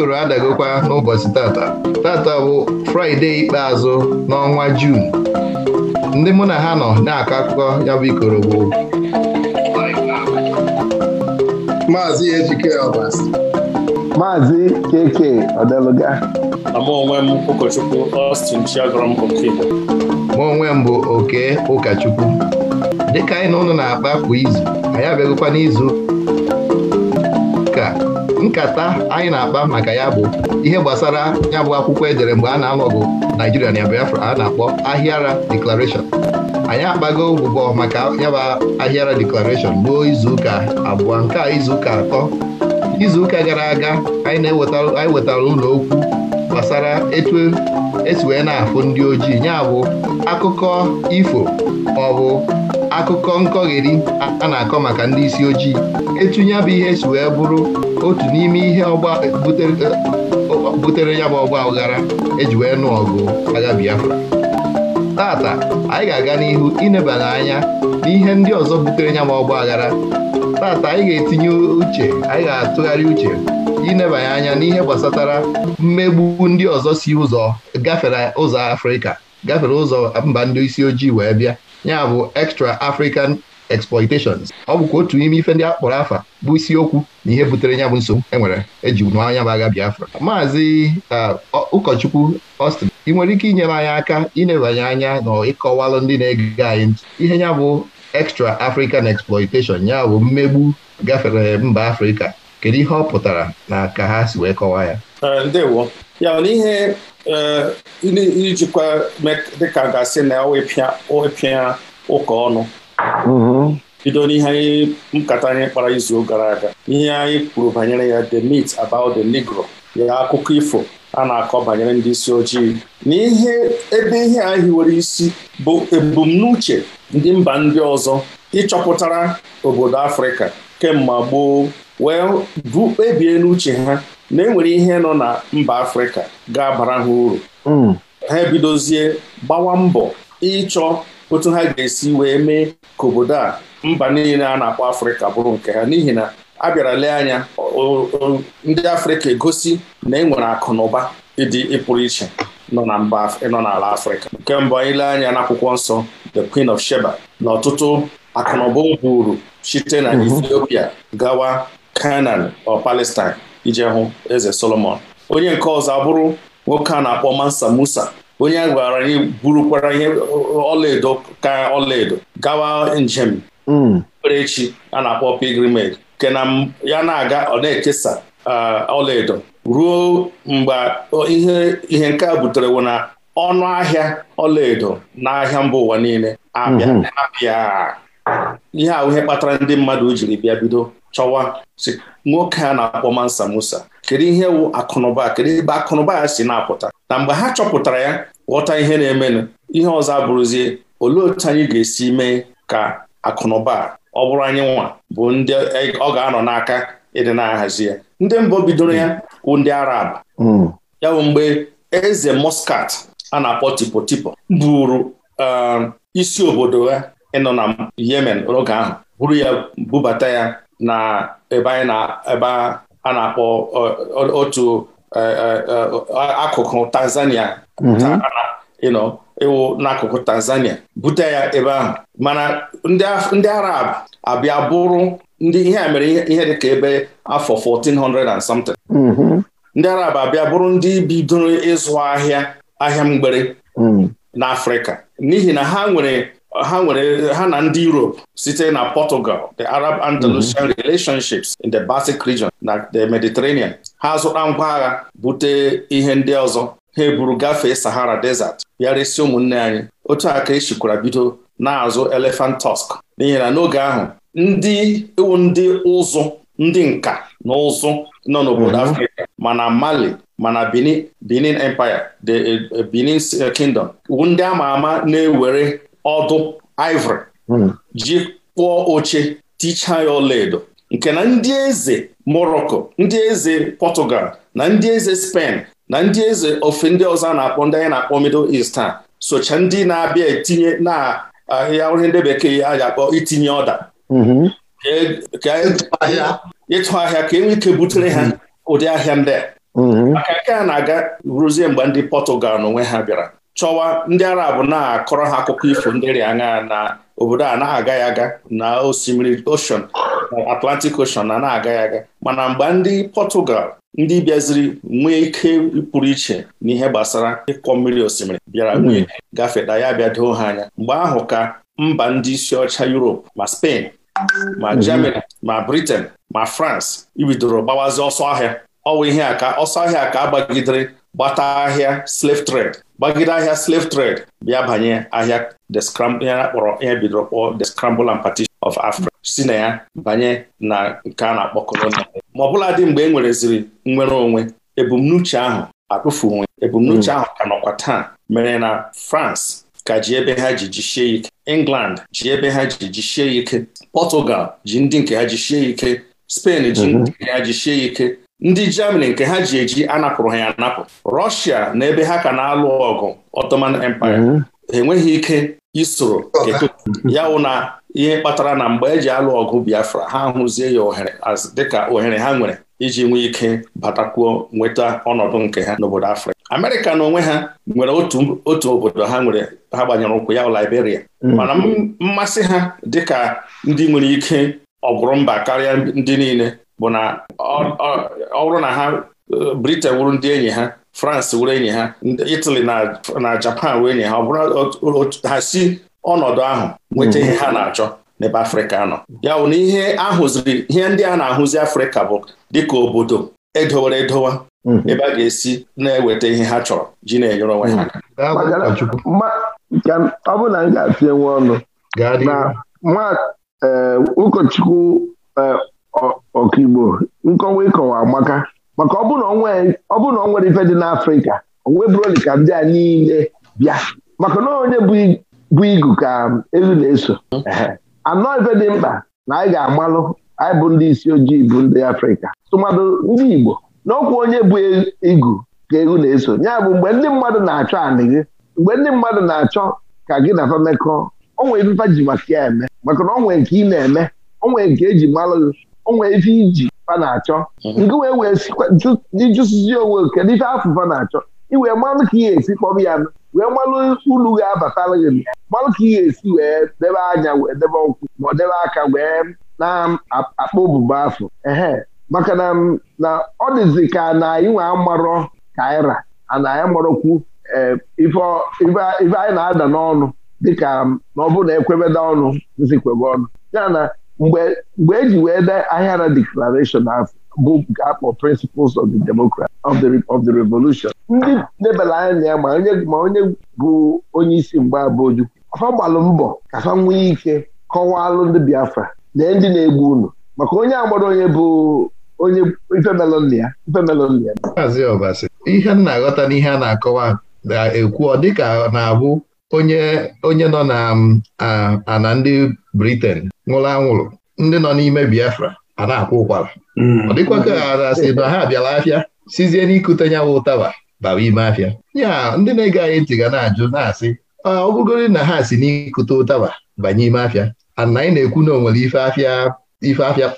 ikoro adagokwa n'ụbọchị tata tata bụ fraịde ikpeazụ n'ọnwa juun ndị mụ na ha nọ na-akọ akụkọ ya bụ ikoro bụ maazị ejike ọbasi maazị keke ọdelụga mụ onwe m ụkọchukwu Austin Ma onwe m bụ oke ụkọchukwu dịka anyị na ụnụ na-akpa kwa izu anyị abịagokwa n'izu nkata anyị na-akpa maka ya bụ ihe gbasara ya bụ akwụkwọ edere mgbe a na-alụ nigeria Naijiria na Biafra a na-akpọ Ahịara deklarashọn anyị akpago ụbụbọ maka ya bụ Ahịara Declaration ruo izuụka abụọ nke a izuụka atọ izuụka gara aga anyị wetara ụlọ okwu gbasara etu esi wee na-afụ ndị ojii ya bụ akụkọ ifo akụkọ nkọgheri a na-akọ maka ndị isi ojii etunye bụ ihe si wee bụrụ otu n'ime ihe eh, butere ya bụ ọgba aghara eji wee nụ ọgụ agha Biafra tata anyị ga-aga n'ihu inebanye anya n'ihe ndị ọzọ butere ya bụ ọgba aghara tata anyị ga-etinye uche anyị ga-atụgharị uche inebanye anya n'ihe gbasatara mmegbu ndị ọzọ si ụzọ gafere ụzọ Afrịka gafere ụzọ mba ndị isi ojii wee bịa ya bụ extra african exploitations ọ bụkwa otu n'ime ife ndị akpọrọ afa bụ isiokwu na ihe butere ya bụ nsogbu enwere eji nụ anya bụ agha Biafra maazị uh, ụkọchukwu Austin ị nwere ike inyere anyị aka inebanye anya na ịkọwalụ ndị na-ege anyị ntị ihe ya bụ extra african exploitation ya bụ mmegbu gafere mba afrịka kedu ihe ọ pụtara na ka ha si wee kọwaa ya ndewo ya eh, na ihe ijikwa dịka e gasị na ịpịa mm-hmm. ụka ọnụ bido n'ihe anyị nkata anyị kpara izu gara aga ihe anyị kwuru banyere ya the meat about the negro ya akụkọ ifo a na-akọ banyere ndị isi ojii na ihe ebe ihe anyị hiwere isi bụ ebumnuche ndị mba ndị ọzọ ịchọpụtara obodo Afrịka kemgbe gboo wee bụ kpebie n'uche ha na enwere ihe nọ na mba Afrịka ga-abara ha uru hmm. ha ebidozie gbawa mbọ ịchọ otu ha ga-esi wee mee ka obodo a mba niile a na-akpọ Afrịka bụrụ nke ha n'ihi na a bịara lee anya ndị Afrịka egosi na e nwere akụnụba ịdị ịpụrụ iche nọ na mba nọ n'ala Afrịka nke mbụ anyị lee anya n'akwụkwọ nsọ the Queen of Sheba na ọtụtụ akụnụba o buru site na mhm. Ethiopia gawa Canaan or Palestine ije hụ eze Solomon onye nke ọzọ abụrụ nwoke a na-akpọ Mansa Musa onye a gwara anyị burukwara ihe ọlaedo ka ọlaedo gawa njem okpukperechi hmm. a na-akpọ pilgrimage nke na ya na-aga ọ na-ekesa ọlaedo ruo mgbe ihe ihe nke a butere wụ na ọnụ ahịa ọlaedo n'ahịa mba ụwa niile abịa hmm. ihe ahụ kpatara ndị mmadụ jiri bịa bido chọwa si nwoke a na-akpọ Mansa Musa kedu ihe wụ akụnụba kedu ebe akụnụba ya si na-apụta na mgbe ha chọpụtara ya ghọta ihe na-emenụ ihe ọzọ abụrụzie olee otu anyị ga-esi mee ka akụnụba ọ bụrụ anyị nwa bụ ndị e, ọ ga-anọ n'aka ịdị na-ahazi ya ndị mbụ bidoro ya wụ ndị Arab hmm. ya bụ mgbe eze moskat a na-akpọ tipotipo buru um, isi obodo ya ịnọ na Yemen n'oge ahụ buru ya bubata ya na ebe ebe a na-akpọ otu e, e, e, akụkụ Tanzania mhm. ịwụ n'akụkụ Tanzania bute ya ebe ahụ mana ndị Arab abịa bụrụ ndị ihe mere ihe dị ka ebe afọ 1400 and something mhm. ndị Arab abịa bụrụ ndị bidoro ịzụ ahịa ahịa mgbere mhm. n'Afrịka n'ihi na ha nwere ha nwere ha na ndị Europe site na Portugal the Arab Andalusian mhm. relationships in the Baltic region na the Mediterranean ha zụta ngwa agha bute ihe ndị ọzọ ha eburu gafee Sahara Desert bịa resi ụmụnne anyị otu a ka e bido na-azụ elephant tusk n'ihi na n'oge ahụ ndị iwu ndị ụzụ ndị nka na ụzụ nọ n'obodo mhm. Afrịka mana Mali mana Benin Empire the eh, Benin Kingdom ndị ama ama na-ewere ọdụ ivory hmm. ji kpụọ oche ticha ya ọlaedo nke na ndị eze Morocco ndị eze Portugal na ndị eze Spain na ndị eze ofe ndị ọzọ na-akpọ ndị anyị na-akpọ Middle East a socha ndị na-abịa etinye na ahịa onye ndị bekee a ga-akpọ itinye ọda hmm. e, e, ịtụ ahịa ka enwe ike butere ha hmm. ụdị ahịa ndị a maka nke a na-aga ruzie mgbe ndị Portugal onwe ha bịara chọwa ndị arab na-akọrọ ha akụkọ ifo ndị rịa aṅa na obodo a na-agaghị aga na osimiri ocean atlantic ocean na na-agaghị aga mana mgbe ndị Portugal ndị bịaziri nwee ike pụrụ iche n'ihe gbasara ịkwọ mmiri osimiri bịara nwee gafeta ya bịa doo ha anya mgbe ahụ ka mba ndị isi ọcha Europe ma Spain ma mhm. Germany ma Britain ma France ibidoro gbawazi ọsọ ahịa ọwa ihe a ka ọsọ ahịa ka agbagidere gbata ahịa slave trade gbagide ahịa slave trade bịa banye ahịa ihe a kpọrọ ihe bidoro kpọọ the scramble and partition of Africa si na ya banye na nke a na-akpọ kolonial ma ọbụla dị mgbe e nwereziri nnwere onwe ebumnuche ahụ atụfu onwe ebumnuche hmm. ahụ ka nọkwa taa mere na France ka ji ebe ha ji jisie ike England ji ebe ha ji jisie ike Portugal ji ndị nke mhm. ha jisie ike Spain ji ndị nke ha jisie ike ndị Germany nke ha ji eji anapụrụ ha ya anapụ Russia na ebe ha ka na-alụ ọgụ Ottoman Empire mhm. enweghị ike isoro ya wụ na ihe kpatara na mgbe eji alụ ọgụ Biafra ha hụzie ya ohere dịka ohere ha nwere iji nwee ike batakwuo nweta ọnọdụ nke ha n'obodo Afrịka Amerịka na onwe ha nwere otu otu obodo ha nwere ha gbanyere ụkwụ ya Liberia mhm. mana mmasị ha dịka ndị nwere ike ọ mba karịa ndị niile bụ na ọ bụrụ na ha Britain wụrụ ndị enyi ha France wụrụ enyi ha Italy na Japan wee enyi ha ọ bụrụ ha si ọnọdụ ahụ nweta mhm. ihe ha na-achọ n'ebe Afrịka nọ ya bụ na ihe ahụziri ihe ndị a na-ahụzi Afrịka bụ dịka obodo edowere edowa mhm. ebe a ga-esi na-eweta ihe ha chọrọ ji na-enyere onwe ha mhm. ọ bụ na m ga nwe ọnụ na eh, ụkọchukwu eh, ọkaigbo nkọwa ịkọwa amaka maka ọ bụrụ na ọ nwere ife dị n'afrịka onwe bụroli ka ndị a niile bịa maka na onye bụ igu ka elu na-eso anọ ife dị mkpa na anyị ga-amalụ anyị bụ ndị isi ojii bụ ndị afrịka tụmadụ ndị igbo n'ọkwa onye bụ e, igu ka elu na-eso ya bụ mgbe ndị mmadụ na-achọ anị gị mgbe ndị mmadụ na-achọ ka gị na famekọ o nwere ji maka ya eme maka na ọ nke ị na-eme o nwere nke eji malụ gị onwe ife iji fa na-achọ nke mhm. wee wee ịjụsizi onwe kedu ife afụ fa na-achọ iwee mmanụ ka ị ga-esi kpọrọ ya wee mmanụ ulu ga-abatara gị mmanụ ka ị ga-esi wee debe anya wee debe ụkwụ ma ọ debe aka wee na-akpọ obubo afọ ehe maka na na ọ dịzi ka na anyị nwe amarọ kaira ana anyị marọkwu eh, ife anyị na-ada n'ọnụ dịka na ọ bụrụ na ekwebeda ọnụ zikwebe ọnụ ya na mgbe eji e wee dee Ahịara ahụ bụ akpọ Principles of the Democracy of the of the Revolution ndị lebara anya ma onye ma onye bụ onye isi mgbe abụju ha gbalụ mbọ ka nwee ike kọwaalụ ndị Biafra na ndị na-egbu unu maka onye agbara onye bụ onye ifemelonịa ifemelonịa ihe m na-aghọta n'ihe a na-akọwa na-ekwu ọ dịka na-abụ onye onye nọ na ana um, ndị briten nwụrụ anwụrụ ndị nọ n'ime Biafra a na-akwụ ụkwara hmm. ọ dịkwa ka ha na ha bịara afịa sizie n'ikute nyawa ụtaba bara ime afịa ya ndị na-ege anyị ntị ga na-ajụ na-asị ọ na ha si n'ikute ụtaba banye ime afịa ana anyị na-ekwu na o nwere ife afịa ife afịa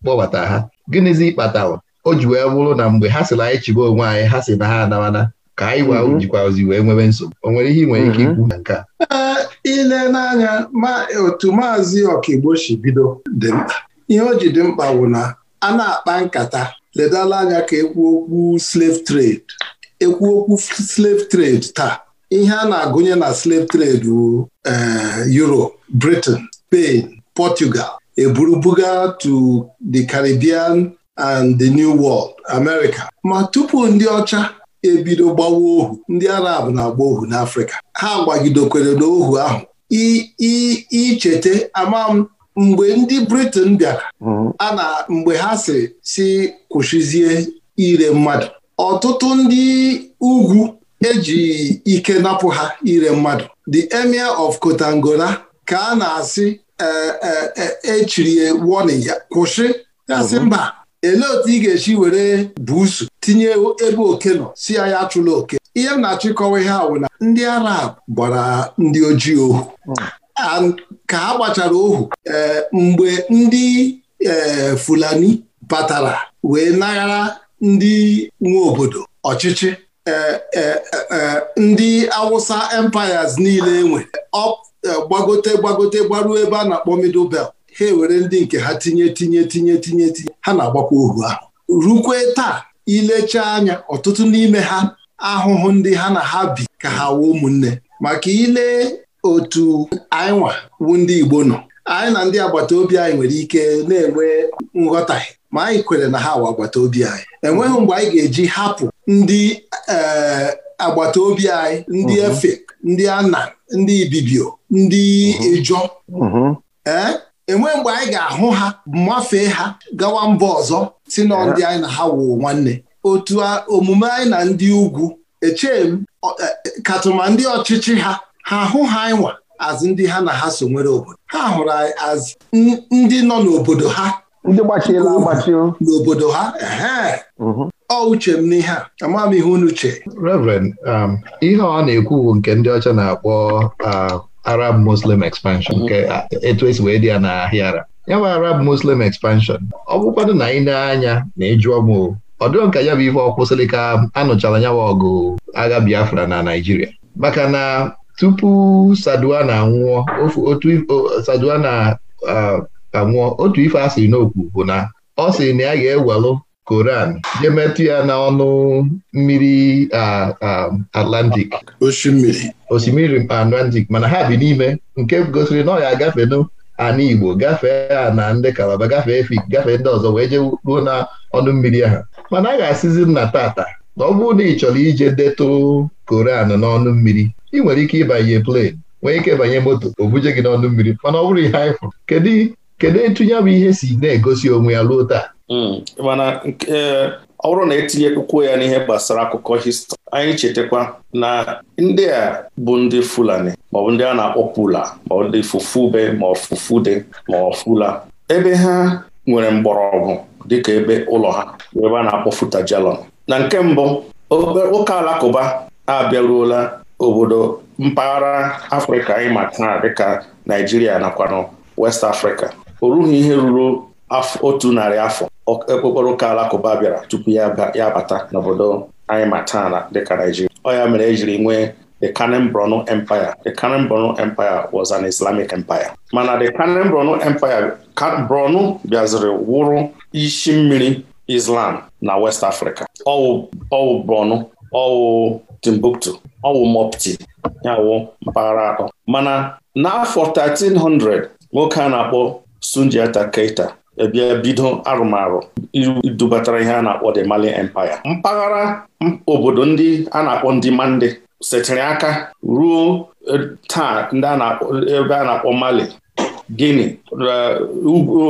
kpọbata ha gịnịzi kpatara o ji wee bụrụ na mgbe ha sịrị anyị chịba onwe anyị ha si na ha anawana ka anyị wa mm-hmm. jikwazi wee nwebe nsogbu o nwere ihe ị nwere ike mm-hmm. ikwu na nke a ile n'anya otu maazị ọkaigbo si bido dị mkpa ihe o ji dị mkpa bụ na a na-akpa nkata ledala anya ka ekwu okwu slave trade ekwu okwu slave trade taa ihe a na-agụnye na slave trade bụ eh, Europe Britain Spain Portugal eburu buga to the Caribbean and the New World America ma tupu ndị ọcha ebido gbawa ohu ndị arab na-agba ohu n'afrịka ha gbagidokwere n'ohu ahụ icheta ama m mgbe ndị britain bịara mhm. a na mgbe ha si si kwụshizie ire mmadụ ọtụtụ ndị ugwu eji ike napụ ha ire mmadụ the emir of kotangora ka a na-asị echiri e, e, e warning ya kwụsị ya sị mhm. mba elee otu ị ga-esi were buusu tinye ebe oke nọ si ya ya achụla oke ihe m na-achọ ịkọwa ihe awụ na ndị arab gbara ndị ojii ohu hmm. ka ha gbachara ohu eh, mgbe ndị eh, fulani batara wee naghara ndị nwe obodo ọchịchị eh, ndị awụsa empires niile enwe gbagote gbagote gbaruo ebe a na-akpọ middle belt ha ewere ndị nke ha tinye tinye tinye tinye tinye ha na-agbakwa ohu ahụ rukwe taa ilecha anya ọtụtụ n'ime ha ahụhụ ndị ha na ha bi ka ha wuo ụmụnne maka ile otu anyị nwa ndị Igbo nọ anyị na ndị agbata obi anyị nwere ike na-enwe nghọtahie ma anyị kwere na ha wa agbata obi anyị enweghị mgbe anyị ga-eji hapụ ndị eh, agbata obi anyị ndị mhm. efe ndị ana ndị Ibibio ndị mhm. Ejọ mhm. ee eh? enwe mgbe anyị ga-ahụ ha mafee ha gawa mba ọzọ si na ndị anyị na ha wụ nwanne otu omume anyị na ndị ugwu echee m e, e, katụma ndị ọchịchị ha ha hụ ha anyị nwa azụ ndị ha na ha so nwere obodo ha hụrụ anyị azụ ndị nọ n'obodo ha ndị gbachiela agbachi n'obodo ha mhm. ọ uche m n'ihe a ama m ihe unu uche um, ihe ọ na-ekwu nke ndị ọcha na-akpọ um, Arab Muslim expansion nke mm-hmm. etu esi wee dị ya n'ahịa ara ya bụ Arab Muslim expansion ọ bụkwanụ na ị na-anya na ịjụọ m ọ dịrọ nka ya bụ ife ọkwụsịrị ka anụchara nyawa ọgụ agha Biafra na Naijiria. maka na tupu Saduwa anwụọ anwụọ otu ife a sịrị n'okwu bụ na ọ siri na ya ga-ewelụ Koran jemetụ ya n'ọnụ mmiri Atlantic osimiri Atlantic mana ha bi n'ime nke gosiri na ọ ya agafe Igbo gafee a na ndị Kalaba gafee Efik gafee ndị ọzọ wee jee ruo na ọnụ mmiri ha mana a ga-asịzi nna tata na ọ bụrụ na ị chọrọ ije detụ Koran n'ọnụ mmiri ị nwere ike ịbanye plen nwee ike banye moto o buje gị n'ọnụ mmiri mana ọ bụrụ ihe anyị kedu kedu ya bụ ihe si na-egosi onwe ya ruo taa Hmm. mana eh, ọ bụrụ na etinye etinyekwuo ya n'ihe gbasara akụkọ histri anyị chetakwa na ndị a bụ ndị Fulani maọbụ ndị a na-akpọ Pula maọbụ ndị Fufube ma Fufude ma Fula ebe ha nwere mgbọrọgwụ dịka ebe ụlọ ha ebe a na-akpọ Futajalon na nke mbụ ụka alakụba abịaruola obodo mpaghara Afrịka anyị ma taa dịka Naijiria nakwa West Africa o rughị ihe ruru otu narị afọ okpokporo eh, ah, ụka alakụba bịara tupu ya bata n'obodo anyị ma taa na dịka Naijiria ọ ya mere ejiri nwee the Kanem Empire the Kanem Empire was an Islamic empire mana the Kanem Empire Borno bịaziri wụrụ isi mmiri Islam na West Africa ọwụ Bronu, ọwụ Timbuktu ọwụ Mopti ya wụ mpaghara atọ mana n'afọ 1300 nwoke a na-akpọ Sunjata Keita ebie bido arụmarụ dubatara ihe a na-akpọ the Mali Empire mpaghara obodo ndị a na-akpọ ndị Mande setịrị aka ruo e, taa ndị ebe a na-akpọ Mali Guinea e,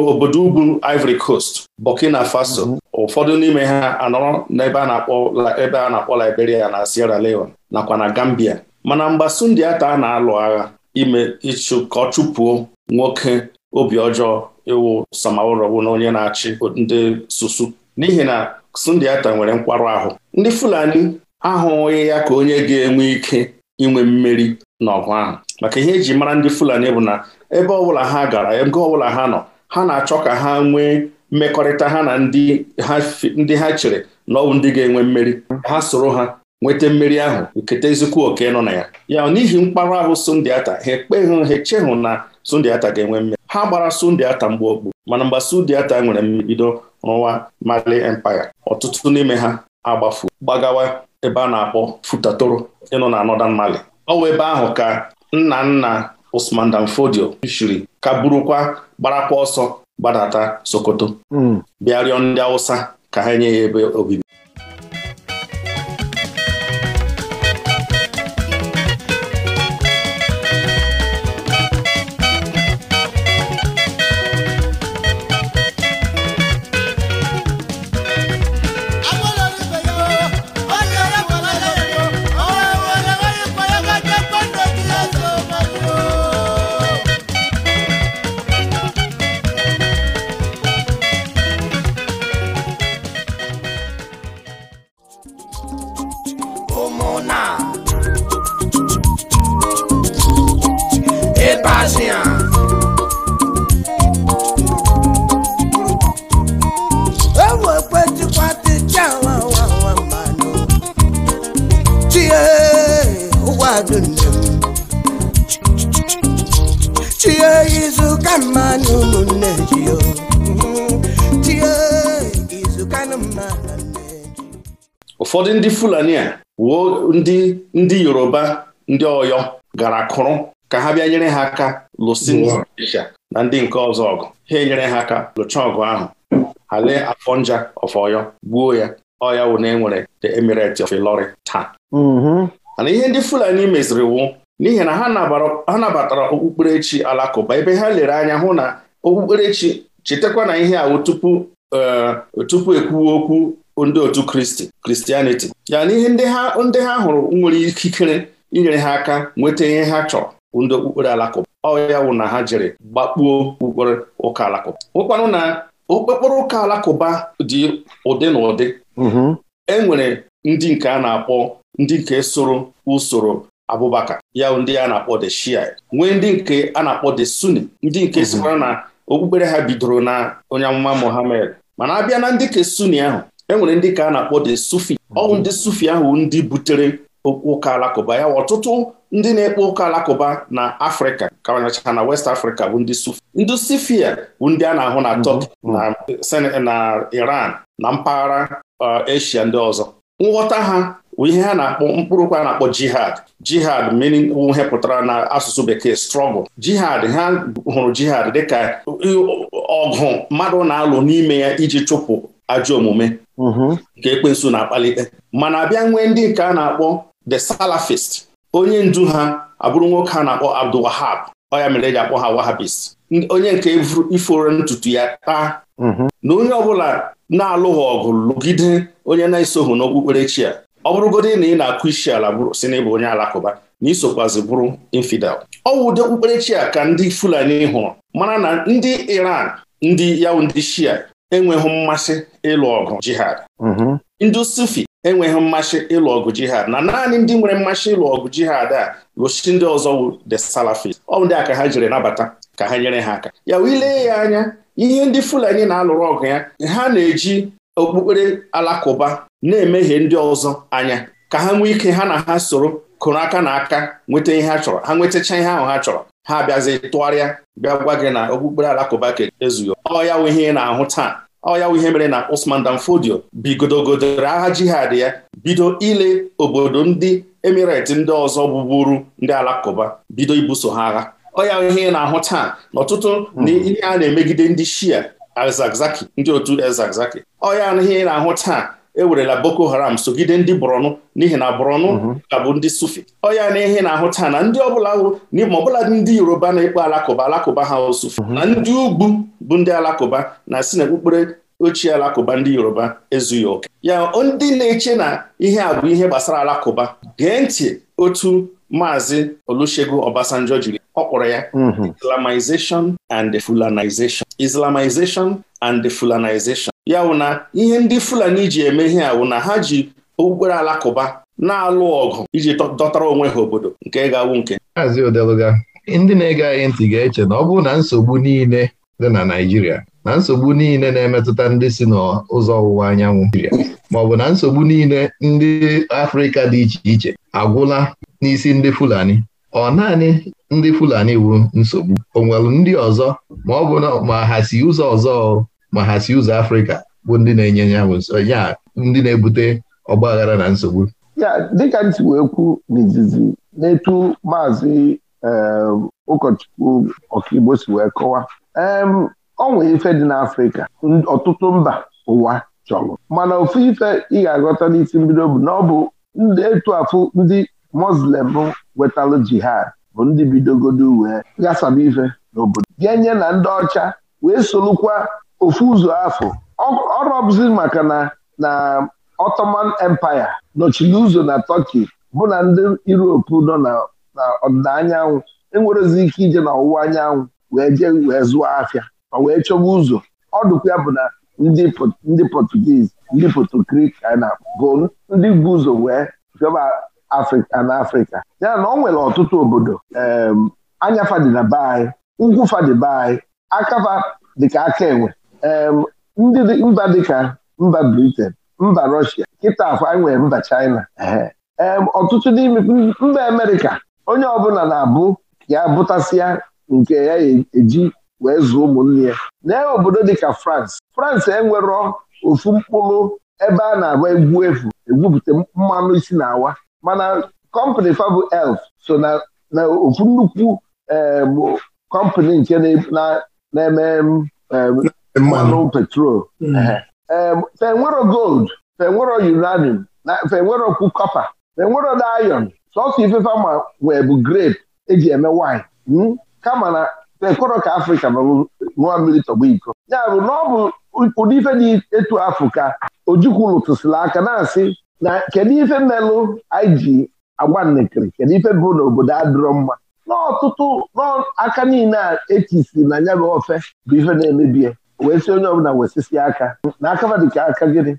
obodo ugwu Ivory Coast Burkina Faso mhm. ụfọdụ n'ime ha anọrọ n'ebe a na-akpọ ebe a na-akpọ Liberia na Sierra Leone nakwa na Gambia mana mgbasu ndị ata a na-alụ agha ime ịchụ ka ọ chụpụo nwoke obi ọjọọ ịwụ samaụrọwụ na onye na-achị ndị susu n'ihi na sundiata nwere nkwarụ ahụ ndị Fulani ahụghị ya ka onye ga-enwe ike inwe mmeri n'ọgụ ahụ maka ihe eji mara ndị Fulani bụ na ebe ọbụla ha gara ọ ọbụla ha nọ ha na-achọ ka ha nwee mmekọrịta ha na ndị ha chere na ọ bụ ndị ga-enwe mmeri ha soro ha nweta mmeri ahụ nketa ezikwu oke nọ na ya ya n'ihi mkparụ ahụ sundiata ha ekpeghị ha echehụ na sundiata ga-enwe mmeri ha gbara Sundiata okpu mana mgbe Sundiata nwere mbido rụwa Mali Empire ọtụtụ n'ime ha agbafu gbagawa ebe a na-akpọ Futatoro ịnụ na Northern Mali ọ wụ ebe ahụ ka nna nna Usman danfodio Fodio ka burukwa gbarakwa ọsọ gbadata Sokoto hmm. bịa rịọ ndị Hausa ka ha nye ya ebe obibi ụfọdụ ndị Fulani a wuo ndị ndị Yoruba ndị Ọyọ gara kụrụ ka ha bịa nyere ha aka lụsị na ndị nke ọzọ ọgụ ha enyere ha aka lụcha ọgụ ahụ ha lee afọ nja of gbuo ya ọya wụ na enwere the emirate of Ilori taa mm-hmm. mana ihe ndị Fulani meziri wu n'ihi na ha nabatara okpukperechi alakụba ebe ha lere anya hụ na okpukperechi chetakwa na ihe awụ tupu eh, tupu ekwuwe okwu ndị otu kristi kristianiti ya na ihe ndị ha hụrụ nwere ikikere inyere ha aka nweta ihe ha chọrọ ndị okpukpere alakụba ọ ya wụ na ha jere gbakpuo okpukpere ụka alakụba ụkpanụ na okpukpere ụka alakụba dị ụdị na ụdị mm-hmm. e nwere ndị nke a na-akpọ ndị nke soro usoro abubakar ya ndị a na-akpọ the shia nwee ndị nke a na-akpọ the suni ndị nke mm-hmm. sikwara na okpukpere ha bidoro na onye amụma mohammed mana abịa na ndị nke suni ahụ enwere ndị ka a na-akpọ de sufi Ọ ndị sufi ahụ ndị butere ụka alakụba ya ọtụtụ ndị na-ekpe ụka alakụba na afrịka kawanyecha na west Africa bụ ndị sufi ndị sufia bụ ndị a na-ahụ na turkey mm-hmm. na iran na mpaghara uh, Asia ndị ọzọ nghọta ha bụ ihe ha na-akpọ mkpụrụ ụka a na-akpọ jihad jihad meaning ihe pụtara na asụsụ bekee struggle jihad ha hụrụ jihad dịka uh, ọgụ mmadụ na-alụ n'ime ya iji chụpụ ajọ omume mm-hmm. nke ekwensu na-akpalite mana abịa nwee ndị nke a na-akpọ the salafist onye ndu ha abụrụ nwoke a na-akpọ Abdul Wahab ọ ya mere eji akpọ ha Wahabist onye nke iforo ntutu ya taa mm-hmm. na onye ọbụla na-alụghị ọgụ lụgide onye na-esoghị n'okpukperechi a. ọ bụrụgodị na ị na-akụ isi ala si na onye alakụba na isokwazi bụrụ infidel ọ bụ ụdị okpukperechi a ka ndị Fulani hụrụ mana na ndị Iran ndị yawụ ndị Shia enweghị mmasị ịlụ ọgụ jihad mm-hmm. ndị sufi enweghị mmasị ịlụ ọgụ jihad na naanị ndị nwere mmasị ịlụ ọgụ jihad a gosi ndị ọzọ wu the salafis ọ ndị a ka ha jiri nabata ka ha nyere ha aka ya wilee ya anya ihe ndị fulani na-alụrụ ọgụ ya ha na-eji okpukpere alakụba na-emehie ndị ọzọ anya ka ha nwee ike ha na ha soro kụrụ aka na aka nweta ihe ha chọrọ ha nwetacha ihe ahụ ha chọrọ ha bịazi tụgharịa bịa gwa gị na okpukpere alakụba ke ezughị ọ ya wụ ihe ị na-ahụ taa ọ ya wụ ihe mere na Usman danfodio Fodio godogodoro agha jihad ya bido ile obodo ndị emireti ndị ọzọ bụburu ndị alakụba bido ibuso ha agha ọ ya wụ ihe na-ahụ taa Ọtụtụ. Hmm. ihe a na-emegide ndị shia Ezagzaki ndị otu ezazaki ọ ihe ị na-ahụ taa ewerela Boko Haram sogide ndị Borno n'ihi na Borno mhm. ka bụ ndị Sufi ọ ya na ihe na-ahụ taa na ndị ọbụla n'ime ọbụla ndị Yoruba na-ekpe alakụba alakụba ha Sufi mhm. na ndị ugwu bụ ndị alakụba na si na okpukpere ochie alakụba ndị Yoruba ezughị oke ya ndị na-eche na ihe a bụ ihe gbasara alakụba gee ntị otu Maazị Olusegun Obasanjo jiri ọ kpọrọ ya mhm. Islamization and Fulanization Islamization and Fulanization ya wụ na ihe ndị Fulani ji eme ihe a wụ na ha ji okpukpere alakụba na-alụ ọgụ iji dọtara onwe ha obodo nke ga-awụ nke ndị na-ege anyị ntị ga-eche na ọ bụ na nsogbu niile dị na Naịjirịa na nsogbu niile na-emetụta ndị si n'ụzọ ọwụwa anyanwụ ma ọ bụ na nsogbu niile ndị Afrịka dị iche iche agwụla n'isi ndị Fulani ọ naanị ndị Fulani wu nsogbu o nwere ndị ọzọ ma ọ bụ ma ha si ụzọ ọzọ ma ha si ụzọ Afrịka bụ ndị na-enye ya ya ndị na-ebute ọgbaghara na nsogbu ya dịka ntị wee kwu n'izizi n'etu maazị ehm, ụkọchukwu ọkaigbo si wee kọwa ehm, ọ nwere ife dị n'Afrịka ọtụtụ mba ụwa chọrọ mana ofu ife ị ga-aghọta n'isi mbido bụ na ọ bụ etu afụ ndị Muslim nwetalụ jihad bụ ndị bidogodo wee ghasaba ife n'obodo ga-enye na ndị ọcha wee solukwa ofu ụzọ afọ ọ maka na na Ottoman Empire nọchiri ụzọ na Turkey bụ na ndị Europe nọ na ọdịda anyanwụ enwerezi ike ije na ọwụwa anyanwụ wee jee wee zụọ afịa ma wee chọba ụzọ ọdụkwa ya bụ na ndị Portuguese ndị na bụ ndị bu ụzọ wee bịaba Afrịka na Afrịka ya na ọ nwere ọtụtụ obodo anya dị na be anyị ugwu be anyị akafa dịka aka enwe ndị mba dịka mba briten mba Russia kịta akwa nwere mba China ọtụtụ n'ime mba Amerịka onye ọbụla na-abụ ya bụtasịa nke ya eji wee zụọ ụmụnne ya na obodo dịka France France enwerọ ofu mkpụrụ ebe a na-agba egwu efu egwupụta mmanụ isi na-awa mana kọmpani fabụ elf so na ofu nnukwu kọmpani nke na-eme mmanụ petrol fenwero gold fenwero uranium fenwerokwu kọpa fenwero dayon sọsọ ifefe ma wee bụ grape eji eme wine hmm? kama na fekọrọ afrịka bụ mmiri tọgbu iko ya bụ na ọ bụ ụdị ife dị etu afụ ka ojukwu lụtụsịla aka na-asị na kedu ife melụ anyị ji agba nnekiri kedu ife bụ n'obodo adịrọ mma n'ọtụtụ n'aka niile a etisiri na nya bụ ofe bụ ife na-emebie wee si onye ọbụla wesisi aka na aka dịka aka gịnị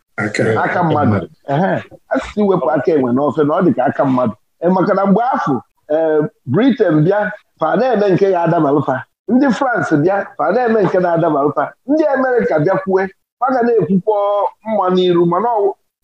aka mmadụ ee asịsị iwepụ aka enwe n'ofe na ọ dịka aka mmadụ e, maka na mgbe afọ ee Britain bịa fa na-eme nke ya adabalụfa ndị France bịa fa na-eme nke na-adabalụfa ndị Amerịka bịakwue aga na ekwukwo mma n'iru mana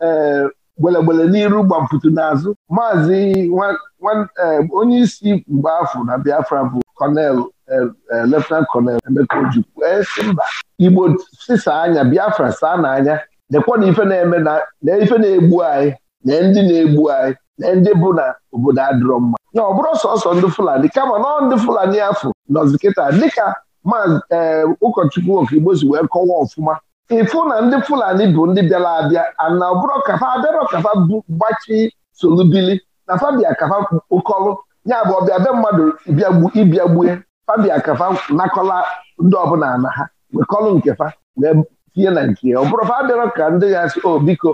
e, gbelegbele n'iru gbamputu n'azụ maazị e, onye isi mgbe afọ na Biafra bụ kọnel eh, eh, leftenant kọnel Emeka Ojukwu esi eh, mba Igbo sisa anya Biafra saa n'anya dekwana ife na-eme na ife na-egbu anyị na ndị na-egbu anyị na ndị bụ na obodo adịrọ mma na ọ bụrụ sọsọ ndị Fulani kama na ndị Fulani afọ nọzi kịta dịka ee ụkọchukwu Okigbo si wee kọwa ọfụma ịfụ na ndị Fulani bụ ndị bịara abịa ana ọbụrụ kafa abịarọ kafa bụ gbachi solubili na fabia kafa ụkọlụ ya bụ ọbịa be mmadụ ịbịa ịbịagbue fabia kafa nakọla ndị ọbụla na ha wekọlụ nke fa wee tinye na nke ya ọ bụrụ fa ka ndị ya asị obiko biko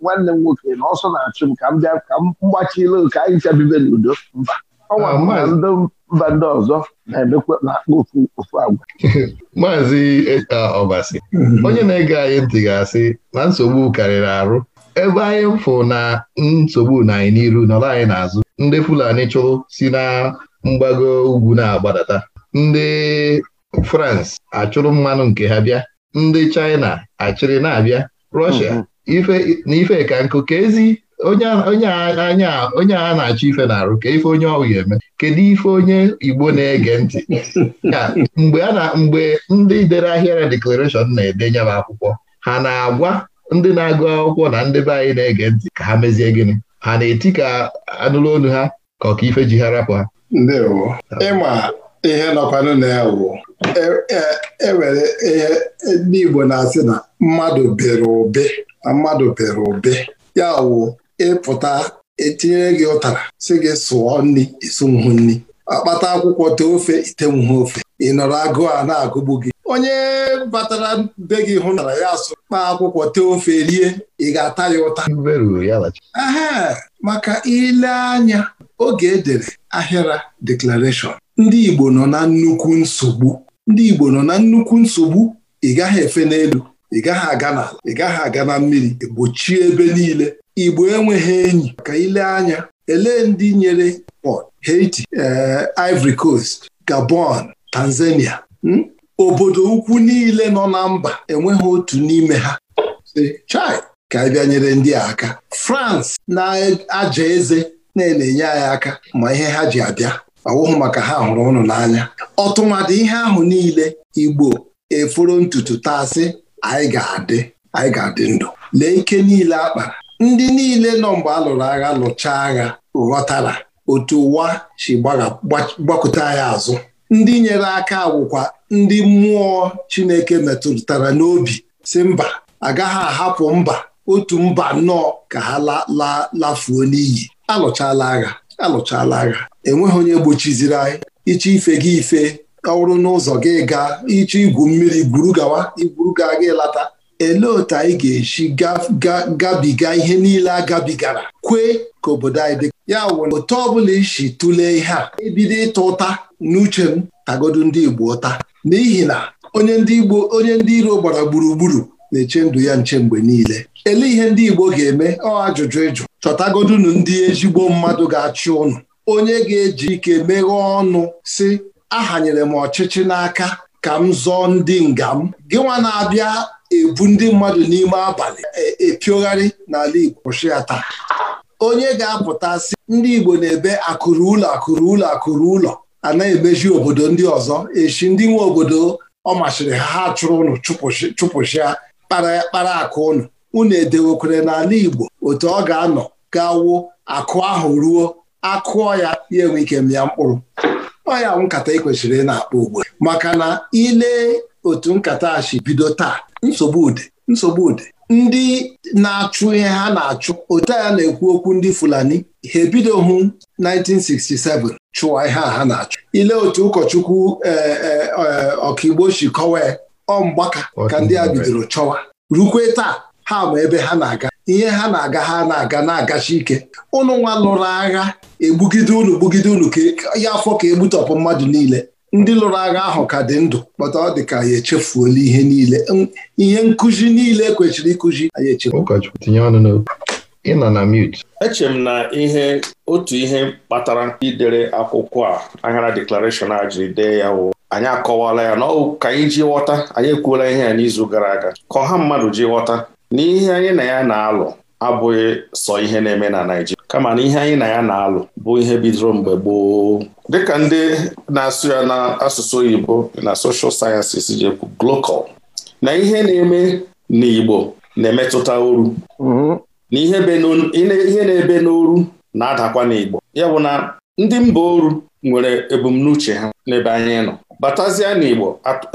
nwanne m nwoke na ọsọ na-achụ m ka m bịa ka m gbachile ka anyị chabibe n'udo mba ọnwa ndị mba ndị ọzọ na-emekwa na ofu agwa maazị ọbasi eh, ah, onye na-ege anyị ntị ga-asị na nsogbu karịrị arụ ebe anyị fụ na nsogbu na anyị n'iru nọrọ anyị n'azụ ndị Fulani chụrụ si na mgbago ugwu na-agbadata ndị France achụrụ mmanụ nke ha bịa ndị China achịrị na-abịa Russia na mm-hmm. ife ka nkụ ka ezi onye a na-achọ ife na-arụ ka ife onye ọhụrụ eme kedu ife onye Igbo na-ege ntị na mgbe ndị dere ahịara deklarashọn na-edenye m akwụkwọ ha na-agwa ndị na-agụ akwụkwọ na ndị be anyị na-ege ntị ka ha mezie gịnị ha na-eti ka anụlụ olu ha ka ọkaife ji ha rapụ ha ịma ihe nọkwanụ na ya wụ ewere e, e ihe ndị Igbo na-asị na mmadụ bere ụbe mmadụ bere ụbe ya wụ ịpụta etinyere gị ụtara si gị sụọ nri mhụ nri akpata akwụkwọ tee ofe itenwuhu ofe ị nọrọ agụụ a na-agụgbu gị onye batara be gị hụtara ya asụ kpaa akwụkwọ tee ofe rie ị ga-ata ya ụta aha maka ile anya oge edere ahịra deklarashọn ndị Igbo nọ na nnukwu nsogbu ndị Igbo nọ na nnukwu nsogbu ị gaghị efe n'elu ị gaghị aga n'ala ị gaghị aga na mmiri e gbochie ebe niile Igbo enweghị enyi ka ile anya elee ndị nyere Port Haiti eh, Ivory Coast Gabon Tanzania hmm? obodo ukwu niile nọ na mba enweghị otu n'ime ha chai ka anyị bịanyere ndị a aka France na-aja eze na-enye anyị aka ma ihe ha ji abịa ọwụhụ maka ha hụrụ ụnụ n'anya ọtụmadị ihe ahụ niile Igbo eforo ntutu taasị anyị ga-adị anyị ga-adị ndụ lee ike niile akpa ndị niile nọ mgbe a lụrụ agha lụchaa agha ghọtara otu ụwa si gbakọta anyị azụ ndị nyere aka wụkwa ndị mmụọ Chineke metụtara n'obi si mba agaghị ahapụ mba otu mba nnọọ ka ha lafuo n'iyi alụchala agha alụchala agha enweghị onye gbochiziri anyị iche ife gị ife ọrụ n'ụzọ gị gaa iche igwu mmiri gwuru gawa igwuru gaa gị lata elee otu anyị ga-esi gabiga ihe niile a gabigara kwee ka obodo anyị dị ya wụ otu ọbụla isi tụlee ihe a ebido ịta ụta n'uche m kagodu ndị Igbo ụta n'ihi na onye ndị Igbo onye ndị iro gbara gburugburu na-eche ndụ ya nche mgbe niile ele ihe ndị Igbo ga-eme ọ ajụjụ ịjụ chọtagodunu ndị ezigbo mmadụ ga-achị ụnụ onye ga-eji ike meghee ọnụ si ahanyere m ọchịchị n'aka ka m zọọ ndị nga m gị na-abịa ebu ndị mmadụ n'ime abalị epiogharị e n'ala Igbo kwụsị ya taa onye ga-apụta sị ndị Igbo na-ebe akụrụ ụlọ akụrụ ụlọ akụrụ ụlọ a na-emeji obodo ndị ọzọ echi ndị nwe obodo ọ machiri ha ha chụrụ ụnụ chụpụchịa kpara akụ ụnụ unu edewekwere n'ala Igbo otu ọ ga-anọ gawo akụ ahụ ruo akụọ ya ya enwe ike mịa mkpụrụ ọ ya nkata e ị kwesịrị na-akpa ugbu maka na ile otu nkata a bido taa nsogbu ude nsogbu ude ndị na-achụ ihe ha na-achụ otu a na-ekwu okwu ndị Fulani ha hụ. 1967 chụwa ihe a ha na-achụ ile otu ụkọchukwu e, e, e, ọkaigbo si kọwa ọ mgbaka ka ndị a bidoro chọwa rukwe taa ha ma ebe ha na-aga ihe ha na-aga ha na-aga na-agachi ike ụnụ nwa lụrụ agha egbugide unu gbugide unu ka ya afọ ka egbutọpụ mmadụ niile ndị lụrụ agha ahụ ka dị ndụ kpọta ọ dị ka ya echefuola ihe niile ihe nkụzi niile kwechiri ịkụzi anyị echefu ị nọ na mute eche m na ihe otu ihe kpatara idere akwụkwọ a aghara deklarashọn a jiri dee ya wụ anyị akọwala ya na ọ ka anyị ji ghọta anyị ekwuola ihe ya n'izu gara aga ka ọha mmadụ ji ghọta n'ihe anyị na ya na-alụ abụghị sọ ihe na-eme na Naịjirịa kama na ihe anyị na ya na-alụ bụ ihe bidoro mgbe gboo dịka ndị na-asụ ya n'asụsụ oyibo na Soshal sciences ji ekwu Glocol na ihe na-eme n'Igbo na-emetụta oru mhm. na ihe na-ebe n'oru na-adakwa n'Igbo ya bụ na ndị mba oru nwere ebumnuche ha n'ebe anyị nọ batazie n'Igbo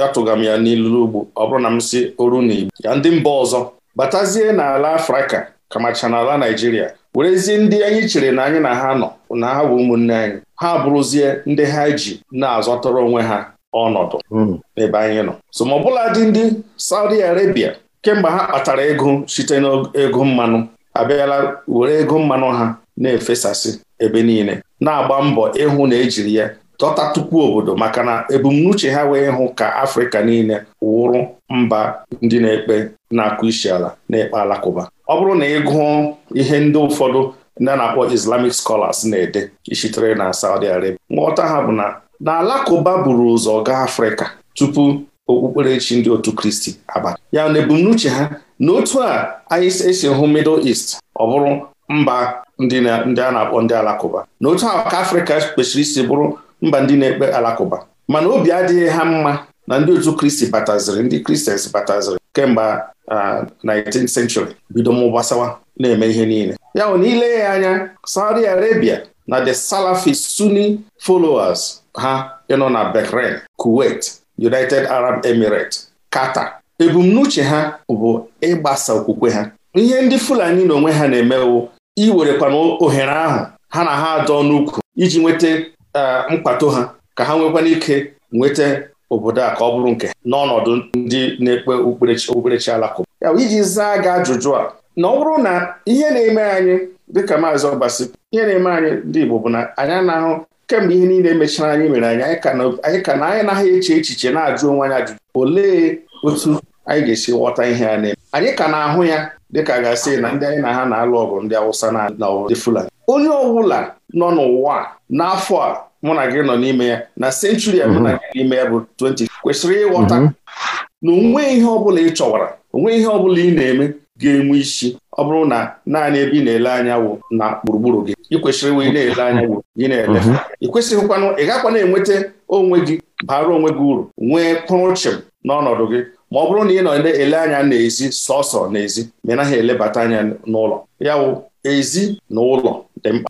atụga m ya n'ilu ugbo ọ bụrụ na m si oru n'Igbo ya ndị mba ọzọ batazie n'ala Afrịka kamacha n'ala Naijiria werezie ndị anyị chere na anyị na ha nọ na ha bụ ụmụnne anyị ha bụrụzie ndị ha ji na azọtara onwe ha ọnọdụ hmm. n'ebe anyị nọ so ma ọbụla dị ndị Saudi Arabia kemgbe ha kpatara ego site n'ego mmanụ abịala were ego mmanụ ha na-efesasị ebe niile na-agba mbọ ịhụ na ejiri ya dọta tupu obodo maka na ebumnuche ha wee hụ ka Afrịka niile wụrụ mba ndị na-ekpe na-akụ isi ala na-ekpe alakụba ọ bụrụ na ị gụọ ihe ndị ụfọdụ ndị na-akpọ Islamic scholars na-ede ishitere na Saudi Arabia nghọta ha bụ na na alakụba buru ụzọ gaa Afrịka tupu okpukperechi ndị otu kristi abalị. ya na ebumnuche ha na otu a anyị esi hụ middle east ọ bụrụ mba ndị a na-akpọ ndị alakụba na otu a ka afrịka kwesịrị isi bụrụ mba ndị na-ekpe alakụba mana obi adịghị ha mma na ndị otu kristi bataziri ndị kristians bataziri kemgbe 19th century bido gbasawa na-eme ihe niile ya ya anya Saudi Arabia na the Salafi Sunni followers ha ịnọ na Bahrain Kuwait United Arab Emirates Qatar ebumnuche ha bụ ịgbasa okwukwe ha ihe ndị Fulani onwe ha na emewu iwerekwana ohere ahụ ha na ha adọ n'ukwu iji nweta e, mkpato ha ka ha nwekwana ike nweta obodo a ka ọ bụrụ nke n'ọnọdụ ndị na-ekpe okpukperechi alakụba ya iji zaa gị ajụjụ a na ọ bụrụ na ihe na-eme anyị dịka maazị ọbasi ihe na-eme anyị ndị Igbo bụ na anyị na-ahụ. kemgbe ihe niile mechara anyị mere anyị anyị ka na anyị naghị eche echiche na-ajụ onwe anyị ajụjụ olee otu anyị ga-esi ghọta ihe a na-eme anyị ka na-ahụ ya dịka gasị na ndị anyị na ha na-alụ ọgụ ndị Awụsa na ndị Fulani onye ọbụla nọ n'ụwa n'afọ a mụ na gị nọ n'ime ya na senchuri a mụ na mhm. gị n'ime ya bụ 20 kwesịrị ịghọta mhm. na onwe ihe ọbụla ị chọwara onwe ihe ọbụla ị na-eme ga-enwe isi ọ bụrụ na naanị ebe ị na-ele anya wụ na gburugburu gị ị kwesịrị nwe na-ele anya gị na-ele mhm. ị ị gakwa na-enweta onwe gị bara onwe gị uru nwee kpụrụchịm n'ọnọdụ gị ma ọ bụrụ na ị nọ ele anya n'ezi sọsọ n'ezi ma ị naghị elebata anya n'ụlọ ya wụ ezi na ụlọ dị mkpa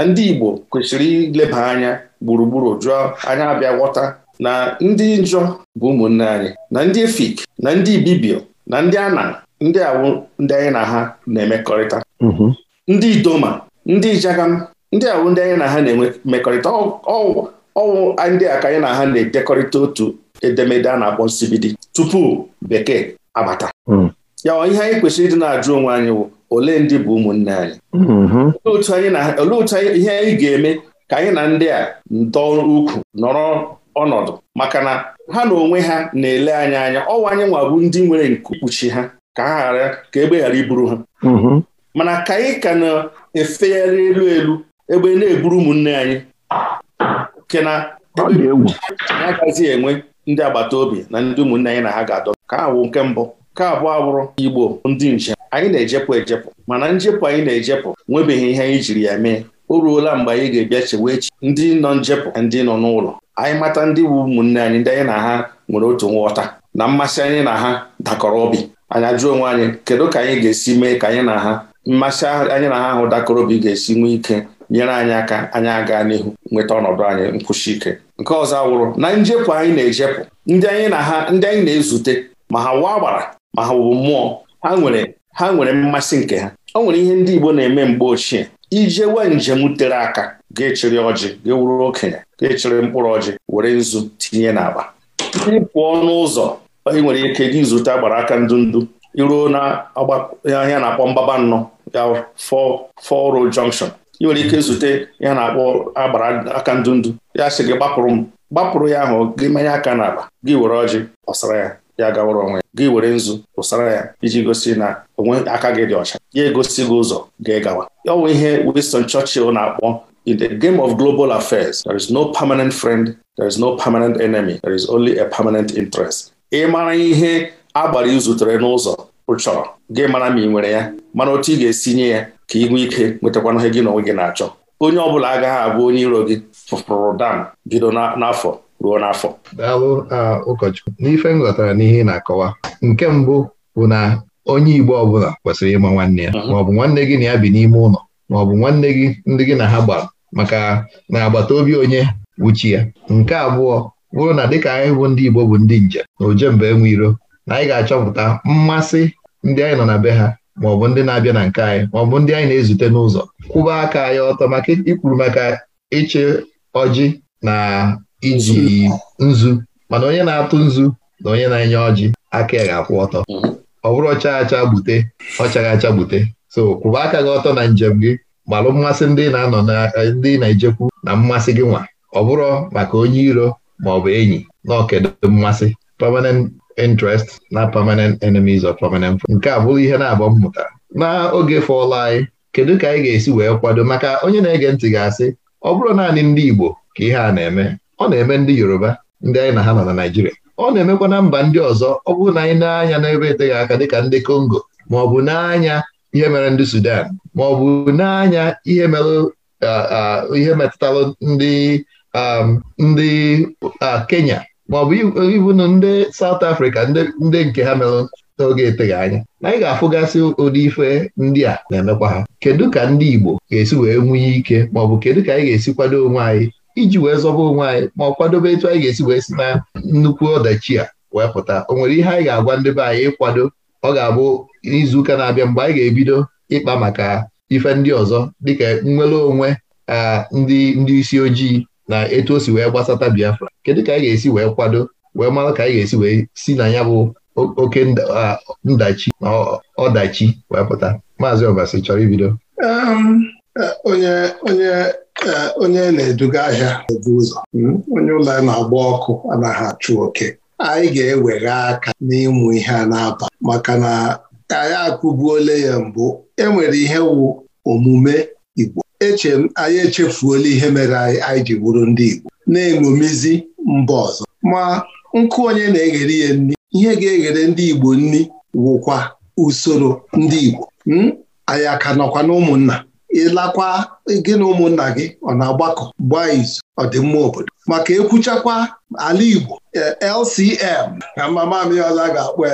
na ndị Igbo kwesịrị ileba anya gburugburu jụọ anya abịa ghọta na ndị njọ bụ ụmụnne anyị na ndị efik na ndị ibibio na ndị ana ndị awụ ndị anyị na ha na-emekọrịta mhm. ndị idoma ndị ijagam ndị awụ ndị anyị na ha na emekọrịta mmekọrịta ọwụ ndị a ka anyị na ha na-edekọrịta otu edemede a na-akpọ nsibidi tupu bekee abata mm. ya ihe anyị kwesịrị ịdị na-ajụ onwe anyị wụ ole ndị bụ ụmụnne anyị mm-hmm. olee otu ihe anyị ga-eme ka anyị na ndị a dọọ ukwu nọrọ ọnọdụ maka na ha na onwe ha na-ele anyị anya ọwa anyị nwa bụ ndị nwere nke kpuchi ha ka ha ghara ka egbe ghara iburu ha mm-hmm. mana ka anyị ka na-efegharị elu elu egbe na-eburu ụmụnne anyị nke na agaghị enwe ndị agbata obi na ndị ụmụnne anyị na ha ga-adọ ka ha wụ nke mbụ nke abụọ abụrụ Igbo ndị njem anyị na-ejepụ ejepụ mana njepụ anyị na-ejepụ nwebeghị ihe anyị jiri ya mee o ruola mgbe anyị ga-ebịa chewe echi ndị nọ njepụ na ndị nọ n'ụlọ anyị mata ndị bụ ụmụnne anyị ndị anyị na ha nwere otu nghọta na mmasị anyị na ha dakọrọ obi anyị ajụọ onwe anyị kedu ka anyị ga-esi mee ka anyị na ha mmasị anyị na ha ahụ dakọrọ obi ga-esi nwee ike nyere anyị aka anyị aga n'ihu nweta ọnọdụ anyị nkwụsi ike nke ọzọ wụrụ na njepụ anyị na-ejepụ ndị anyị na ha ndị anyị na-ezute ma ha waa gbara ma ha bụ mmụọ ha nwere ha nwere mmasị nke ha ọ nwere ihe ndị Igbo na-eme mgbe ochie ijewe njem tere aka ga-echiri ọjị ga-ewuru okenye ga-echiri mkpụrụ ọjị were nzu tinye n'akpa ndị pụọ n'ụzọ ị nwere ike gị zute agbara aka ndụ iruo na ahịa na-akpọ mbaba nnọ ya fọ road junction ị nwere ike zute ya na-akpọ agbara aka ndụndụ ya sị gị gbapụrụ m gbapụrụ ya ahụ gị manye aka n'akpa gị were ọjị ọsara ya ya gawara onwe ya gị were nzu pụsara ya iji gosi na onwe aka gị dị ọcha ya egosi gị ụzọ gị gawa ọ bụ ihe Winston Churchill na-akpọ In the game of global affairs, there is no permanent friend, there is no permanent enemy, there is only a permanent interest. Ị mara ihe agbara izutere n'ụzọ ụchọrọ gị mara ma ị nwere ya mana otu ị ga-esi nye ya ka ị nwee ike nwetakwana ihe gị na onwe gị na-achọ onye ọ bụla agaghị abụ onye iro gị fụfụrụ dam bido n'afọ ruo n'afọ daalụ ụkọchukwu n'ife m ghọtara n'ihe ị na-akọwa nke mbụ bụ na onye Igbo ọbụla kwesịrị ịma nwanne ya mhm. maọbụ nwanne gị na ya bi n'ime ụlọ maọbụ nwanne gị ndị gị na ha gbara maka na agbata obi onye wuchi ya nke abụọ bụrụ na dịka anyị bụ ndị Igbo bụ ndị njem na ojembe enwe iro na anyị ga-achọpụta mmasị ndị anyị nọ na be ha maọbụ ndị na-abịa na nke anyị maọbụ ndị anyị na-ezute n'ụzọ kwụba aka anyị ọtọ maka ikwuru maka ịchị ọjị na iji nzu mana onye na-atụ nzu na onye na-enye ọjị aka ya ga-akwụ ọtọ mhm. ọ bụrụ ọcha acha gbute ọchaghị acha gbute so kwụba aka gị ọtọ na njem gị gbalụ mmasị ndị na-anọ na eh, ndị na-ejekwu na mmasị gị nwa ọ bụrụ maka onye iro ma ọ bụ enyi na okedo mmasị permanent interest na permanent enemies of permanent nke a bụrụ ihe na abọ mmụta n'oge fọlụ anyị kedu ka anyị ga-esi wee kwado maka onye na-ege ntị ga-asị ọ bụrụ naanị ndị Igbo ka ihe a na-eme ọ na-eme ndị Yoruba ndị anyị na ha nọ na Naịjirịa ọ na-emekwa na mba ndị ọzọ ọ bụrụ na anyị na-anya n'ebe eteghị aka dịka ndị Kongo ma ọ bụ n'anya ihe mere ndị Sudan ma ọ bụ n'anya ihe mere ihe metụtara ndị um, ndị Kenya ma ọ bụ ibu ndị South Africa ndị nke ha mere n'oge eteghị anya na anyị ga-afụgasị ụdị ife ndị a na-emekwa ha kedu ka ndị Igbo ga-esi wee nwunye ike ma ọ bụ kedu ka anyị ga-esi kwado onwe anyị iji wee zọba onwe anyị ma ọ kwadobe etu anyị ga-esi wee si na nnukwu ọdachi a wee pụta o nwere ihe anyị ga-agwa ndị be anyị ịkwado ọ ga-abụ n'izuụka na-abịa mgbe anyị ga-ebido ịkpa maka ife ndị ọzọ dịka nnwere onwe ndị ndị isi ojii na etu o si wee gbasata Biafra kedu ka anyị ga-esi wee kwado wee mara ka anyị ga-esi wee si na ya bụ oke ndachi na ọdachi wee pụta maazị ọbasi chọrọ ibido um, Eh, onye onye eh, onye na-eduga ahịa ebu ụzọ hmm? onye ụlọ ya na-agba ọkụ anaghị achụ oke anyị ga-ewere aka n'ịmụ ihe a na-aba maka na anyị akwụbuola ya mbụ enwere ihe wụ omume Igbo eche anyị echefuola ihe mere anyị anyị ji bụrụ ndị Igbo na-eṅomizi mba ọzọ ma nkụ onye na-eghere ya nri ihe ga-eghere ndị Igbo nri wụkwa usoro ndị Igbo hmm? anyị aka nọkwa na ụmụnna ịlakwa gị na ụmụnna gị ọ na-agbakọ gbaa izu ọdịmma obodo maka ekwuchakwa ala Igbo e, LCM na mama Ọla ga-akpọ e,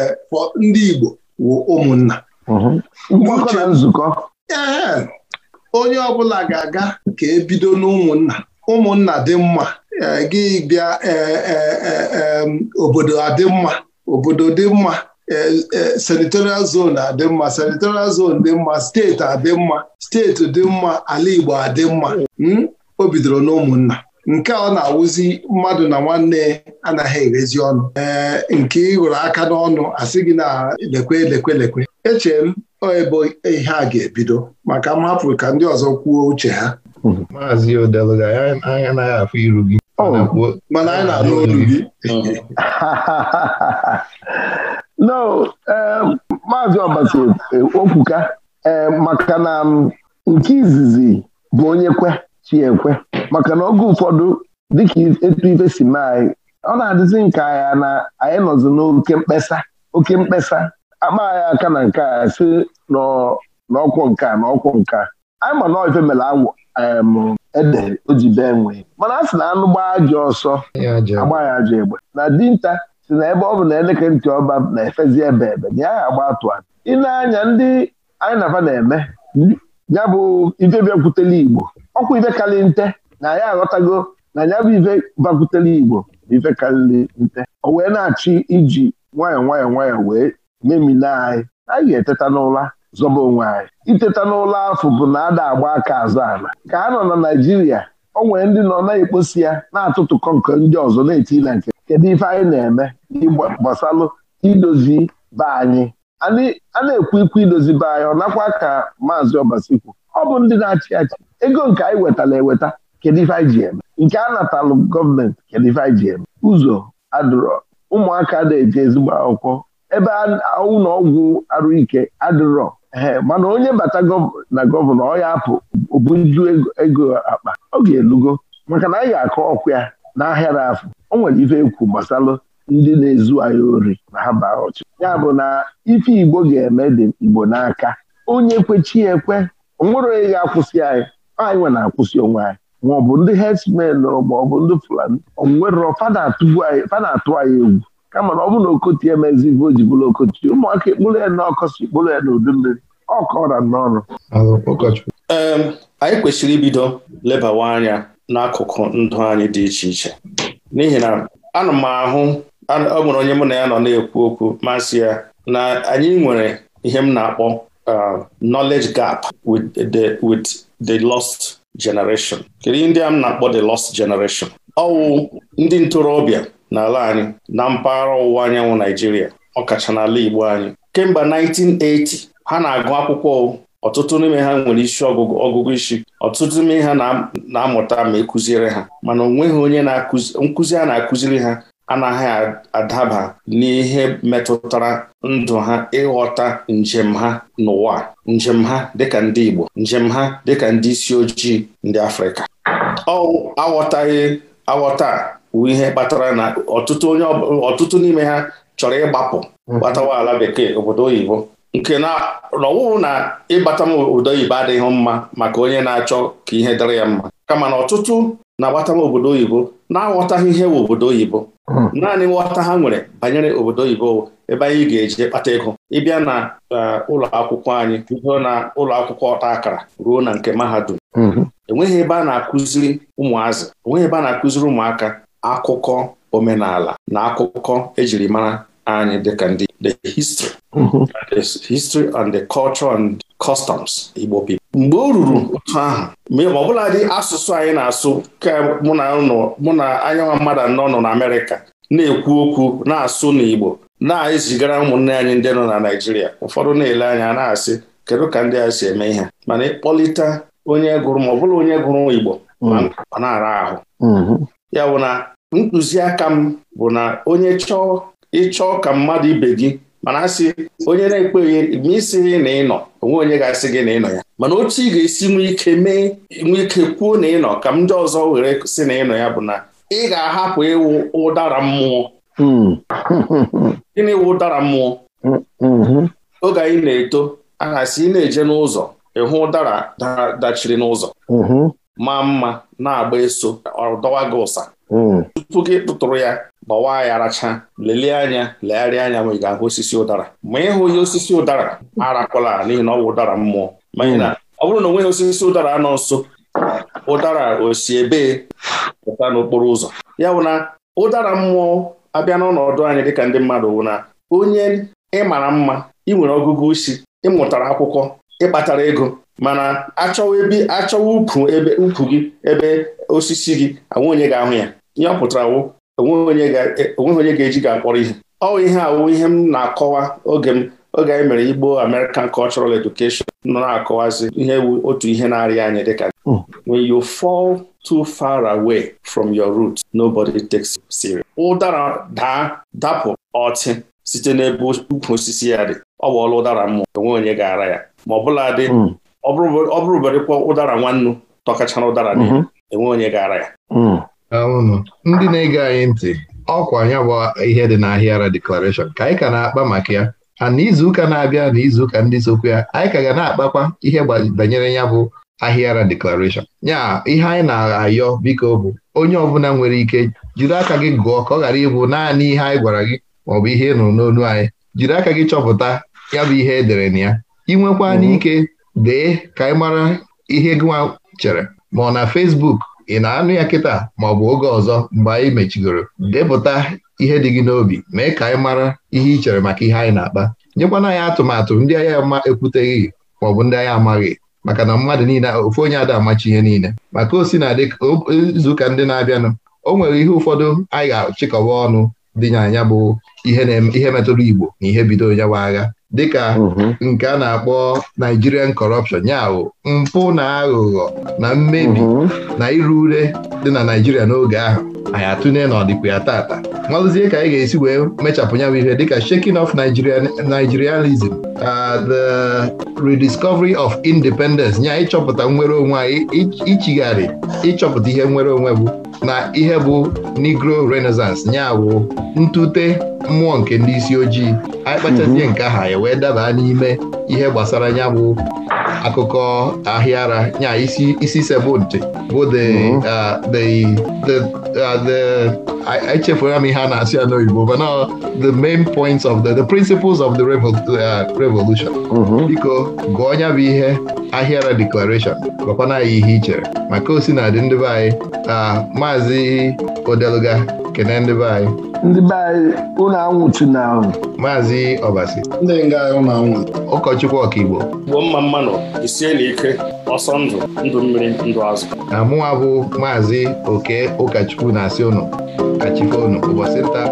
ndị Igbo wụ ụmụnna ee mhm. e, onye ọbụla ga-aga ka ebido n'ụmụnna ụmụnna dị mma gị bịa obodo adị mma obodo dị mma senatorial zone adị mma senatorial zone dị mma steeti adị mma steeti dị mma ala Igbo adị mma hmm? o bidoro n'ụmụnna nke ọ na-awụzi mmadụ na nwanne anaghị erezi ọnụ ee nke ịhụrụ aka n'ọnụ asị gị na lekwe lekwe lekwe echere m ebe ihe a ga-ebido maka m hapụrụ ka ndị ọzọ kwuo uche ha maazị anya anaghị afụ iru gị oh, mana anyị na-alụ olu gị no um, maazị Ọbasi eh, okwuka ee um, maka na um, nke izizi bụ onye kwe chiekwe maka na oge ụfọdụ dịka etu ife si mee anyị ọ na-adịzi nke ya na anyị nọzi n'oke mkpesa oke mkpesa akpa aka na nke a si n'ọkwọ nka na ọkwọ nka anyị ma na ife mere awụ ede o bee mana a sị na anụ gbaa ajọ ọsọ agba ya ajọ egbe na dinta si na ebe ọ bụ na eleke ntị ọba na-efezi ebe ebe na ya agba atụ ịna-anya ndị anyị na afa na-eme ya bụ ibe bịakwutele Igbo ọkwa ife karị nte na ya aghọtago na ya bụ ibe bakwutere Igbo na ibe nte o wee na-achị iji nwayọọ nwayọọ nwayọọ wee memina anyị anyị ga-eteta n'ụla zọba onwe anyị iteta n'ụlọ afọ bụ na ada agba aka azụ ala ka ha nọ na Naijiria, o nwere ndị nọ na-ekposi ya na-atụtụkọ nke ndị ọzọ na-eti na nke kedu ife anyị na-eme gbasalụ idozi be anyị a na-ekwu ikwu idozi be anyị ọ nakwa ka maazị ọbasikwu ọ bụ ndị na-achị achị ego nke anyị wetara eweta kedu ife anyị ji eme nke a natalụ gọọmenti kedu ife anyị ji eme ụzọ adụrọ ụmụaka na-eje ezigbo akwụkwọ ebe ụlọọgwụ arụ ike adụrọ ee mana onye bata na gọvanọ ọ ya apụ obunju ego akpa ọ ga-elugo maka na anyị ga-akọ ọkụ ya n'ahịa afọ afụ o nwere ife ekwu gbasalụ ndị na-ezu anyị ori na ha baa ọchị ya bụ na ife Igbo ga-eme dị Igbo n'aka onye kwechi ekwe nwere onye ga-akwụsị anyị anyị nwe na-akwụsị onwe anyị ma ọ bụ ndị herdsmen ma ọ bụ ndị Fulani onwerọ fada atụ anyị egwu kama na ọ bụ na okoti emezi ife o ji bụrụ okoti ụmụaka ekpụrụ ya n'ọkọsi ekpụrụ ya n'udu mmiri ọ n'ọrụ anyị kwesịrị ibido lebawa anya n'akụkụ ndụ anyị dị iche iche n'ihi na ana m ahụ ọ nwere onye mụ na ya nọ na-ekwu okwu masị ya na anyị nwere ihe m na-akpọ uh, knowledge gap with the with the lost generation kedu ndị a m na-akpọ the lost generation ọwụ ndị ntorobịa n'ala anyị na mpaghara ọwụwa anyanwụ Naijiria ọkacha n'ala Igbo anyị kemgbe 1980 ha na-agụ akwụkwọ ọtụtụ n'ime ha nwere isi ọgụgụ ọgụgụ isi ọtụtụ n'ime ha na-amụta ma ekuziere ha mana onweghị onye nkụzi a na-akụziri ha anaghị adaba n'ihe metụtara ndụ ha ịghọta njem ha n'ụwa njem ha dịka ndị Igbo njem ha dịka ndị isi ojii ndị Afrịka ọ aghọtaghị aghọta ihe kpatara na ọtụtụ ọtụtụ n'ime ha chọrọ ịgbapụ mm-hmm. gbatawa ala bekee obodo oyibo nke na ọwụwụ na ịgbata m obodo oyibo adịghị mma maka onye na-achọ ka ihe dịrị ya mma kama na ọtụtụ na-agbata m obodo oyibo na-aghọtaghị ihe wụ obodo oyibo hmm. naanị nghọta ha nwere banyere obodo oyibo ebe anyị ga-eji kpata ego ịbịa na e, ụlọ akwụkwọ anyị na ụlọ akwụkwọ ọta akara ruo na nke mahadum hmm. enweghị ebe a na-akụziri ụmụazị enweghị ebe a na-akụziri ụmụaka akụkọ omenala na akụkọ ejiri mara and they can do the history mm the history and the culture and customs Igbo people. mgbe o ruru otu ahụ ma ọ dị asụsụ anyị na-asụ mụ na anyanwa mmadụ anọ nọ na Amerịka na-ekwu okwu na-asụ n'Igbo na-ezigara ụmụnne anyị ndị nọ na Naịjirịa ụfọdụ na-ele anya na-asị kedu ka ndị a si eme ihe mana ịkpọlite onye gụrụ ma ọ bụla onye gụrụ Igbo mm. ọ na-ara ahụ mm-hmm. ya bụ na ntụziaka m bụ na onye chọọ ịchọọ ka mmadụ ibe gị mana asị onye na-ekweghị ma gị na ịnọ onwe onye ga-asị gị na ịnọ ya mana otu ị ga-esi nwee ike mee nwee ike kwuo na ịnọ ka ndị ọzọ were sị na ịnọ ya bụ na ị ga-ahapụ ịwụ ụdara mmụọ hmm. gịnị wụ ụdara mmụọ oge anyị na-eto a na-asị ị na-eje n'ụzọ ịhụ ụdara dachiri n'ụzọ hmm. maa mma na-agba eso ọ dọwa gị ụsa hmm. tupu gị tụtụrụ ya gbawa ya aracha lelie anya legharịa anya ma ị ga-ahụ osisi ụdara ma ị hụghị osisi ụdara arakwala n'ihi na ọ bụ ụdara mmụọ n'ihi na ọ bụrụ na onweghị osisi ụdara anọ nso ụdara osi ebe pụta n'okporo ụzọ ya bụ na ụdara mmụọ abịa n'ọnọdụ anyị dịka ndị mmadụ wụ na onye ị mara mma ị nwere ọgụgụ isi ị mụtara akwụkwọ ị kpatara ego mana achọwa ebe achọwa ukwu ebe ukwu gị ebe osisi gị anwe onye ga-ahụ ya ihe ọ pụtara wụ onweghị onye ga-eji ga akpọrọ ihe ọ ihe awụ ihe m na-akọwa oge m oge anyị mere Igbo American Cultural Education nọ na-akọwazi ihe otu ihe na-arịa anyị dịka when you fall too far away from your roots nobody takes you serious ụdara daa dapụ ọtị site n'ebe ukwu osisi ya dị ọ bụ ọlụ ụdara mmụọ enwe onye ga-ara ya ma ọ bụla dị ọ bụrụberekwa ụdara nwannu tọkachara ụdara mhm. enwe onye ga-ara ya ndị na-ege anyị ntị ọkwa ya bụ ihe dị n'ahịara deklarashọn ka anyị ka na-akpa maka ya a n'izuụka na-abịa na izuụka ndị sokwu ya anyị ka ga na-akpakwa ihe banyere ya bụ ahịara deklarashọn ya ihe anyị na-ayọ biko bụ onye ọbụla nwere ike jiri aka gị gụọ ka ọ ghara ịbụ naanị ihe anyị gwara gị maọbụ ihe nọ n'onu anyị jiri aka gị chọpụta ya bụ ihe edere na ya inwekwa n'ike mhm. dee ka anyị mara ihe nwa chere ma ọ na fesbuk. ị na-anụ ya kịta ma ọ bụ oge ọzọ mgbe anyị mechigoro depụta ihe dị gị n'obi mee ka anyị mara ihe ị chere maka ihe anyị na-akpa nyekwana anyị atụmatụ ndị agha ma ekwuteghị maọbụ ndị agha amaghị maka na mmadụ niile ofu onye ada amachi ihe niile maka osi na izuụka ndị na-abịanụ o nwere ihe ụfọdụ anyị ga-achịkọwa ọnụ dị na anya bụ ihe metụrụ Igbo na ihe bido onye agha dịka mhm. nke a na-akpọ Nigerian corruption ya mpụ na aghụghọ na mmebi mhm. na ịrụ ure dị na Naijiria n'oge ahụ anyị atụnye n'ọdịkwa ya tata malụzie ka anyị ga-esi wee mechapụ ya bụ ihe dịka shaking of Nigerianism uh, the rediscovery of independence nye ịchọpụta nnwere onwe anyị ịchọpụta ihe nnwere onwe bụ na ihe bụ Negro Renaissance ya bụ ntute mmụọ nke ndị isi ojii anyị kpachazie mhm. nke aha ya wee daba n'ime ihe gbasara ya bụ akụkọ ahịa ara nya isi isi sebụntị bụ the mhm. uh, uh, m ihe a na-asị ya n'oyibo mana the main points of the the principles of the uh, revolution mhm. biko gụọ ya bụ ihe ahịara declaration gwakwana anyị ihe i chere maka osinadị ndị be anyị maazị Odeluga kene ndị be anyị ndị be anyị ụlọ anwụchi na ahụ maazị ọbasi ndị nga unu anwụ ụkọchukwu ọkaigbo Igbo. mma mmanụ isie na ike ọsọ ndụ ndụ mmiri ndụ azụ na mụnwa bụ maazị oke ụkọchukwu na-asị ụnụ kachifo ụbọchị nta